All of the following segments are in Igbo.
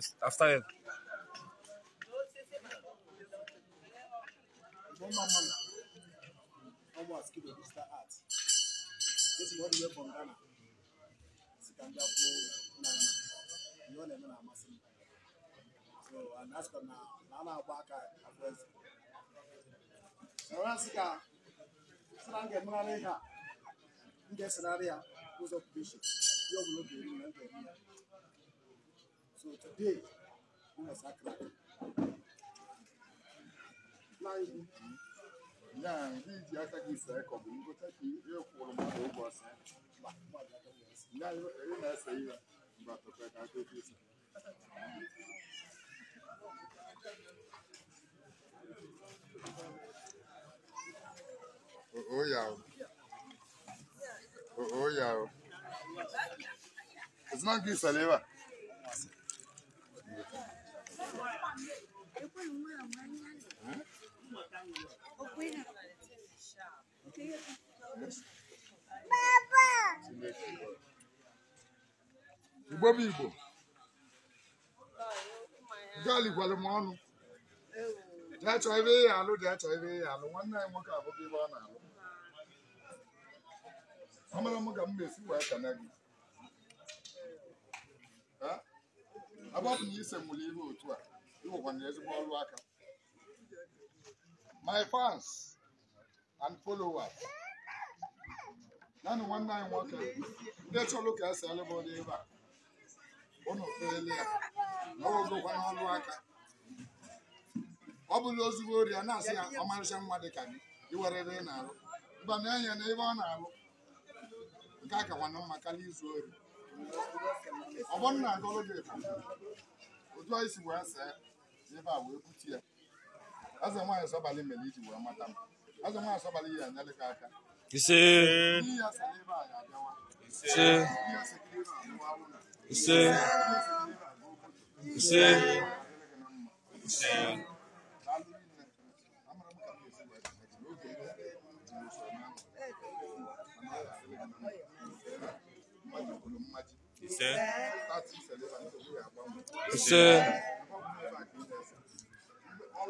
Yes, I've started. One man man. One more skill of digital art. This is all the way from Ghana. Sikanja for Nana. You all know I'm asking. So, and that's for now. Nana Baka, I'm present. So, Rasika, Srange Muraneha, in the scenario, who's occupation. You will not be in the So today, we are sacred. Flying. Yeah, he is the attack is a couple. You go take the real form of the boss. Yeah, you know, I say, but I do this. Oh, yeah. Oh, yeah. It's not good, Saliva. Igbo bụ Igbo galikwalụ m ọnụ ya chọọ ebe ị alụ dị chọọ ebe ị alụ nwanne anyị nwoke abụghị ebe ọ na-alụ amara m ga m na-esi wee kana gị agbapụ na ise mụrụ ihe otu a ezigbo my fans and followers naanị nwanne anyị nwoke ndị chọrọ ka esi alụba ụdị ebe a ụnụ ya na ogokwa n'ọrụ aka ọ bụla ozugbo ori a na-asị ya ọmarịcha mma dị ka gị iwerere na-arụ mba na na ebe ọ na-alụ nke a ka nwanne mma karịa izu ori ọ bụrụ na ebe a wee butu ya eze nwaanyị sọbalị mere iji wee mata m eze nwaanyị sọbalị ya anyalị gị aka ise ise ise ise ise ise ise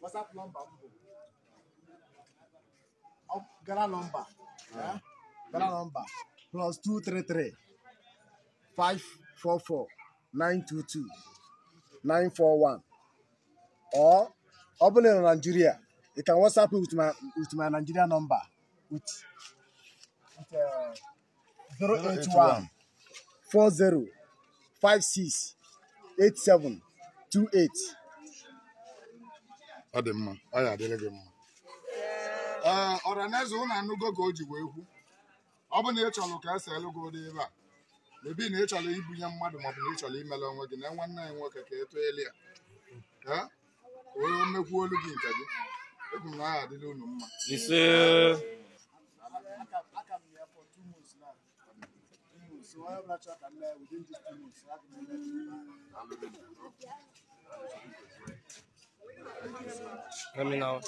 WhatsApp number. m bụ gara nọmba gara nọmba plus four 544 922 two or ọ bụrụ na ị nọ na Nigeria you can WhatsApp me with my with my Nigeria number with uh, zero eight one, four zero, five six, eight seven, two eight. ọ dị mma ọ ya adịrị gị mma ee ọranaeze ụnụ anụgo ka o ji wee kwu ọ bụ na ị chọrọ ka esi elu gị ụdị ebe a mebi na ị chọrọ ibunye mmadụ maọbụ na ị chọrọ imere onwe gị na nwanne anyị nwoke ka eto elu ya ka o mmekwu olu gị nke gị egwu na aha adịla unu mma Thank you. Let me know.